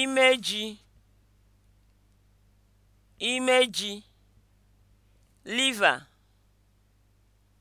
imeji imeji liver